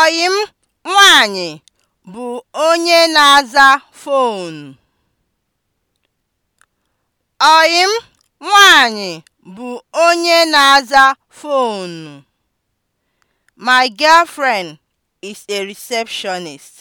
Ọyị m bụ onye na-aza foonu. bụ onye na-aza foonu. My girlfriend is a receptionist.